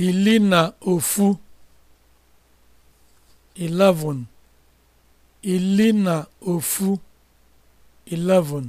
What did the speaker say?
ili na ofu 11